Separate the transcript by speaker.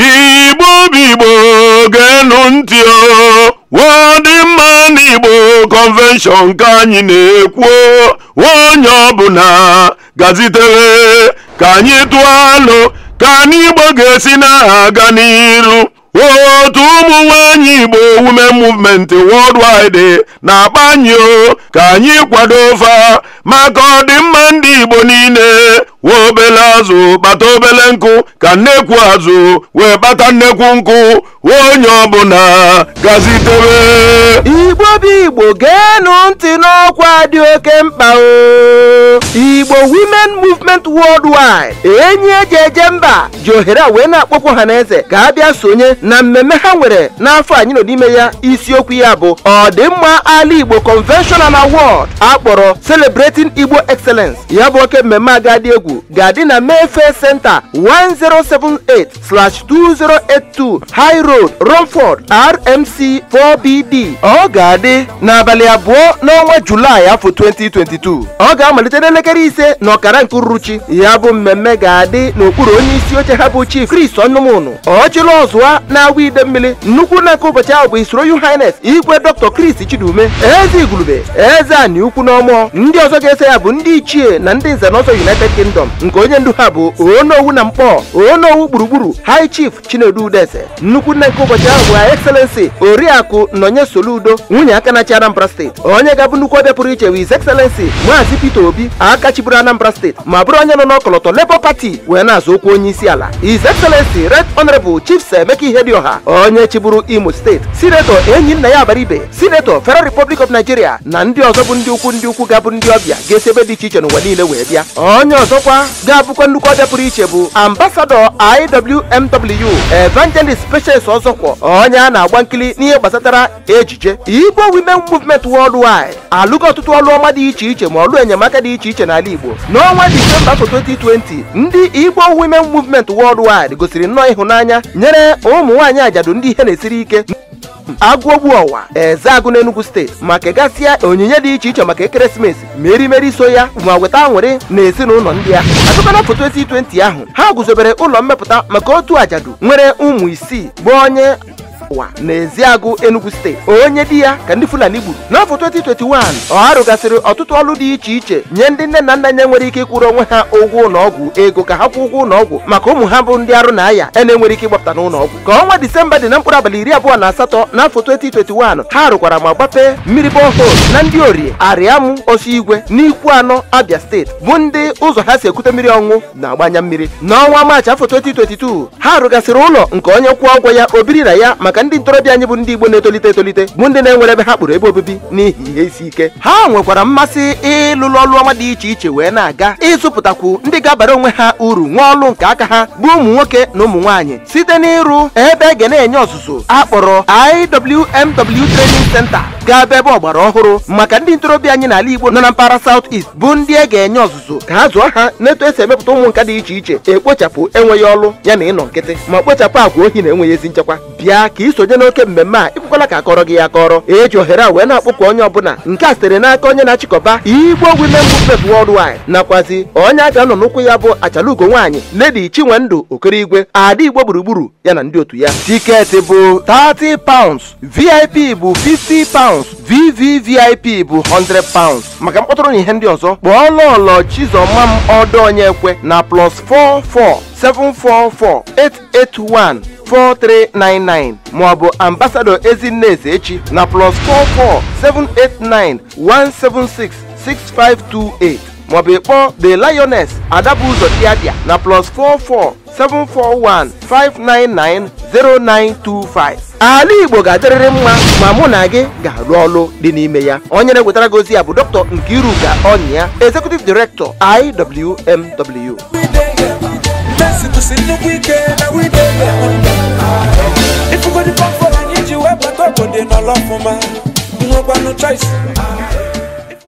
Speaker 1: igbo bigbo ga-enu ntị ọdịmma n'igbo kọnvenshọn ka anyị na-ekwu onye ọbụla gazitere ka anyị tụọ alụ ka anyị igbo ga-esi na-aga n'iru otu ụmụ nwanyị igbo women movement wide na-akpanyụ ka anyị kwado fa maka ọdịmma ndị igbo niile wee obele azụ kpata obele nkụ ka nnekwu azụ wee kpata nnekwu nkụ onye ọbụla gazitebe igbo bụ igbo geenụ ntị
Speaker 2: n'ọkwa dị oke mkpa o igbo women movement worldwide enyi eji eje mba ji ohere wee na-akpọkwu ha eze ka a bịa sonye na mmemme ha nwere n'afọ anyị nọ n'ime ya isiokwu ya bụ ọdịmma ala igbo convention and award akpọrọ celebrating igbo excellence ya bụ oke mmemme agadi egwu ga-adị na Mayfair senta 1078/2082 High Road Romford RMC 4BD ọ ga-adị n'abalị abụọ n'ọnwa Julaị afọ 2022 ọ ga-amalite n'elekere ise na ọkara nke uruchi ya bụ mmemme ga-adị n'okpuru onye isi oche ha bụ Chief Chris Onnụmụnụ ọchịla ọzụwa na-awa ide mmiri nnukwu na nke ụbọchị ahụ bụ isoro Royal Highness Igwe Dr. Chris Chidume eze igurube eze ani ukwu n'ọmụọ ndị ọzọ ga ese ya bụ ndị ichie na ndị nze ọzọ United Kingdom kọstọm nke onye ndu ha bụ oonowu na mkpọ onowu gburugburu high chief chinedu udeze nnukwu nne nke ụbọchị ahụ bụ ha excellency oriakụ nọnye soludo nwunye aka na anambra steeti onye ga-abụ nnukwu ọbịa pụrụ iche wiz excellency maazị peter obi aka chiburu anambra steeti ma bụrụ onye nọ n'ọkọlọtọ labour party wee na-azụ okwu onye isi ala his excellency red honorable chief ihe dị ọha onye chiburu imo steeti sinetọ enyi nna ya ibe sinetọ federal republic of nigeria na ndị ọzọ bụ ndị ukwu ndị ukwu ga-abụ ndị ọbịa ga-esi ebe dị iche iche n'ụwa niile wee bịa onye ọzọkwa ọzọkwa ga-abụkwa nnukwu ọbịa pụrụ iche bụ ambasadọ IWMW Evangelist Patience Ọzọkwọ onye a na-agba nkili n'ihe gbasatara ejije Igbo Women Movement Worldwide alụgo ọtụtụ ọlụ ọma dị iche iche ma ọlụ enyemaka dị iche iche n'ala Igbo n'ọnwa Disemba 2020 ndị Igbo Women Movement Worldwide gosiri nnọọ ịhụnanya nyere ụmụ nwaanyị ajadu ndị ihe na-esiri ike agụogbu ọwa eze agụ enugu steeti ma kegasịa onyinye dị iche iche maka ekeresimesi merimeri so ya ma weta nwere na ezinụlọ ndị ahụ azụkana foto esi 20 ahụ ha guzobere ụlọ mmepụta maka otu ajadu nwere ụmụ isii bụ onye n'ezi agụ enugu steeti onye di ya ka ndị fulani gburu n'afọ 2021 ọ arụgasịrị ọtụtụ ọrụ dị iche iche nye ndị nne na nna nye nwere ike ịkwụrụ onwe ha ụgwọ ụlọọgwụ ego ka ha kwụọ ụgwọ ụlọọgwụ maka ụmụ ha bụ ndị arụ na aya e na-enwere ike ịgbapụta n'ụlọọgwụ ka ọnwa disemba dị na mkpụrụ abalị iri abụọ na asatọ n'afọ 2021 ha rụkwara ma gbapee mmiri bọhol na ndị orie arịamụ osi igwe n'ikwu anọ abịa steeti bụ ndị ụzọ ha si ekute mmiri ọṅụ na-agbanya mmiri n'ọnwa maachị afọ 2022 ha rụgasịrị ụlọ nke onye kwụọ ụgwọ ya obiri na ya maka ndị ntorobịa anyị bụ ndị Igbo na-etolite etolite bụ ndị na-enwere ebe ha kpụrụ ebe obibi n'ihi ihe isi ike ha nwekwara mmasị ịlụlụ ọrụ dị iche iche wee na-aga ịzụpụtakwu ndị ga-abara onwe ha uru nwa ọlụ nke aka ha bụ ụmụ nwoke na ụmụ nwaanyị site n'ịrụ ebe ga na-enye ọzụzụ akpọrọ IWMW Training Center ga ebe ọgbara ọhụrụ maka ndị ntorobịa anyị n'ala Igbo nọ na mpaghara South East bụ ndị e ga-enye ọzụzụ ka ha zụọ ha n'etu esi emepụta ụmụ nka dị iche iche ekpochapụ enweghị ọlụ ya na ịnọ nkịtị ma kpochapụ agwa ohi na enweghị ezi nchekwa bịa ka isonye n'oke mmemme a ịkwekwala ka akọrọ gị ya akọrọ eji ohere a wee na-akpọkụ onye ọbụla nke a sitere n'aka onye na-achịkọba Igbo Women Movement Worldwide nakwazi onye abịa nọ n'ụkwụ ya bụ achalugo nwaanyị Lady Chinwendu Okerigwe ada Igbo gburugburu ya na ndị otu ya tiketi bụ 30 pounds VIP bụ 50 pounds pounds vvvip bụ 100 pounds maka mkpọtụrụ na ihe ndị ọzọ kpọọ lọlọ chizọma m ọdọ onye ekwe na plus 44 744 881 4399 maọbụ ambasadọ ezinne eze echi na plus 44 789 176 6528 maọbụ ịkpọ the lioness adabuzo diadia na plus 44 seven four one five nine nine zero nine two five. ala igbo ga-adịrịrị mma ma mụ na gị ga-arụ ọrụ dị n'ime ya onye na-ewetara gị ozi ya bụ dr nkiruka ọnyịa executive director iwmw
Speaker 1: ifụgodipafọ anyị ji webata obodo n'ọlọfụma nwekwanụ choice